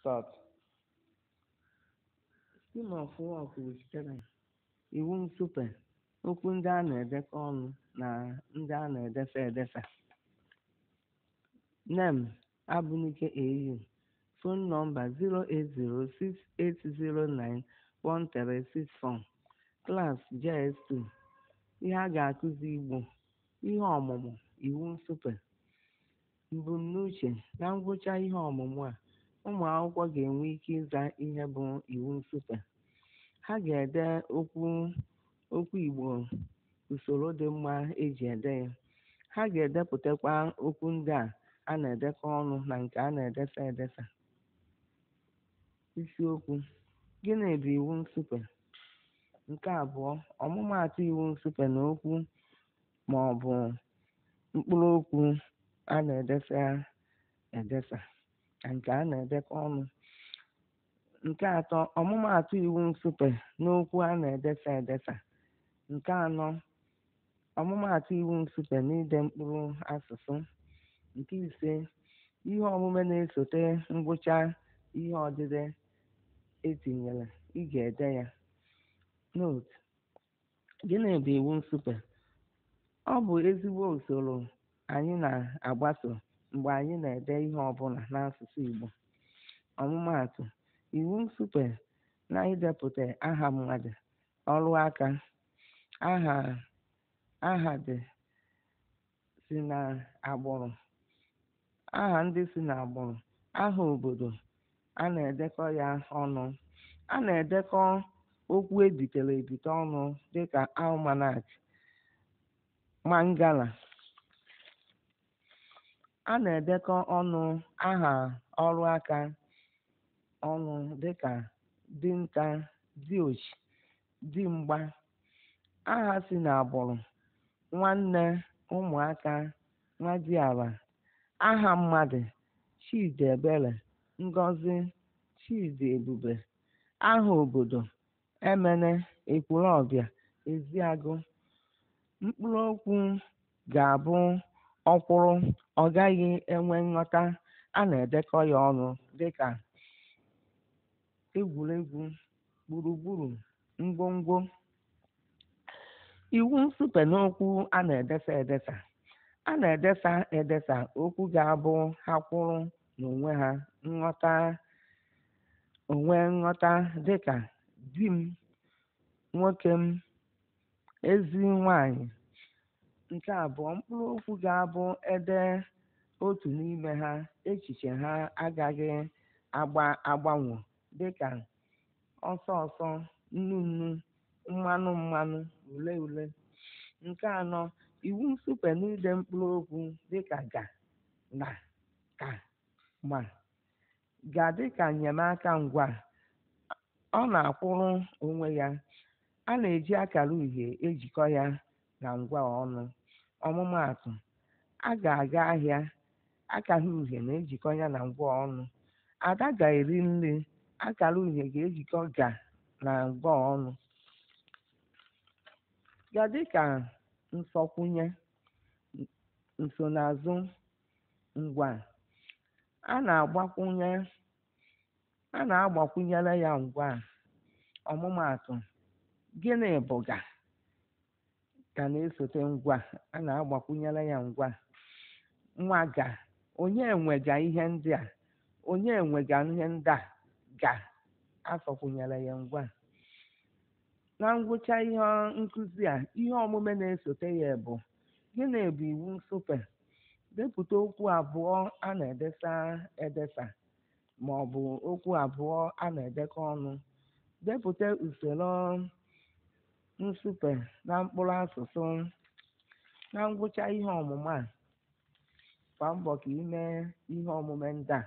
Start. Schema Fụwa kwupụtara iwu ntupe, okwu ndị a na-edekọ ọnụ na ndị a na-edefe edefe. NEM: Amunike AU. Fon nọmba 08068091364. klas JS2. Ihe a ga-akụzi Igbo: Ihe ọmụmụ Iwu nsupe. Mbunuche: Na ngwụcha ihe ọmụmụ a ụmụ akwụkwọ ga-enwe ike ịza ihe bụ iwu nsụpe ha ga-ede okwu okwu Igbo usoro dị mma eji ede ya ha ga-edepụtakwa okwu ndị a a na-edekọ ọnụ na nke a na edesa edesa isiokwu gịnị bụ iwu nsụpe nke abụọ ọmụmaatụ iwu nsụpe na okwu ma ọ bụ mkpụrụ okwu a na-edefe edesa edesa. nke a na-edekọ ọnụ nke atọ ọmụmaatụ iwu nsupe n'okwu a na-edesa edesa nke anọ ọmụmaatụ iwu nsupe n'ide mkpụrụ asụsụ nke ise ihe omume na-esote ngwụcha ihe odide etinyere ị ga-ede ya note gịnị bụ iwu nsupe ọ bụ ezigbo usoro anyị na-agbaso mgbe anyị na-ede ihe ọbụla n'asụsụ Igbo ọmụmaatụ iwu nsupe na idepụta aha mmadụ ọrụ aka aha ndị si na agbụrụ aha obodo a na-edekọ ya ọnụ a na-edekọ okwu ebitere ebite ọnụ dịka almanac mangala a na-edekọ ọnụ aha ọrụ aka ọnụ dịka dinta diochi dimgba aha si n'agbụrụ nwanne ụmụaka ala aha mmadụ chidiebere ngozi ebube aha obodo emene ezi eziagụ mkpụrụ okwu ga-abụ ọkwụrụ ọ gaghị enwe nghọta a na-edekọ ya ọnụ dịka egwuregwu gburugburu ngwongwo iwu nsupe n'okwu a na-edesa edesa a na-edesa edesa okwu ga-abụ ha kwụrụ n'onwe ha nghọta onwe nghọta dịka di m nwoke m ezi nwanyị Nke abụọ, mkpụrụ okwu ga-abụ ede otu n'ime ha echiche ha agaghị dị dịka "ọsọ ọsọ", "nnu nnu", "mmanụ mmanụ", ule ule. Nke anọ, iwu nsupe n'ide mkpụrụ okwu dịka "ga", "na", "ka", "ma" ga dịka ka enyemaka ngwa, ọ na-akwụrụ onwe ya. A na-eji akara uhie ejikọ ya na ngwa ọnụ. ọmụmaatụ a ga-aga ahịa akara uhie na-ejikọ ya na ngwa ọnụ ada ga-eri nri akara uhie ga-ejikọ ga na ngwa ọnụ ga dịka nsọkwụnye nsonaazụ ngwa a na-agbakwụnye a na-agbakwụnyere ya ngwa ọmụmaatụ gịnị bụ ga ka na-esote ngwa a na-agbakwunyere ya ngwa nwa ga onye enwega ihe ndị a onye enwega ihe ndị a ga asọkwunyere ya ngwa na ngwụcha ihe nkuzi a ihe omume na-esote ya bụ gịnị bụ iwu nsupe depụta okwu abụọ a na-edesa edesa ma ọ bụ okwu abụọ a na-edekọ ọnụ depụta usoro nsupe na mkpụrụ asụsụ na ngwụcha ihe ọmụma a gbaa mbọ ka ị mee ihe omume ndị a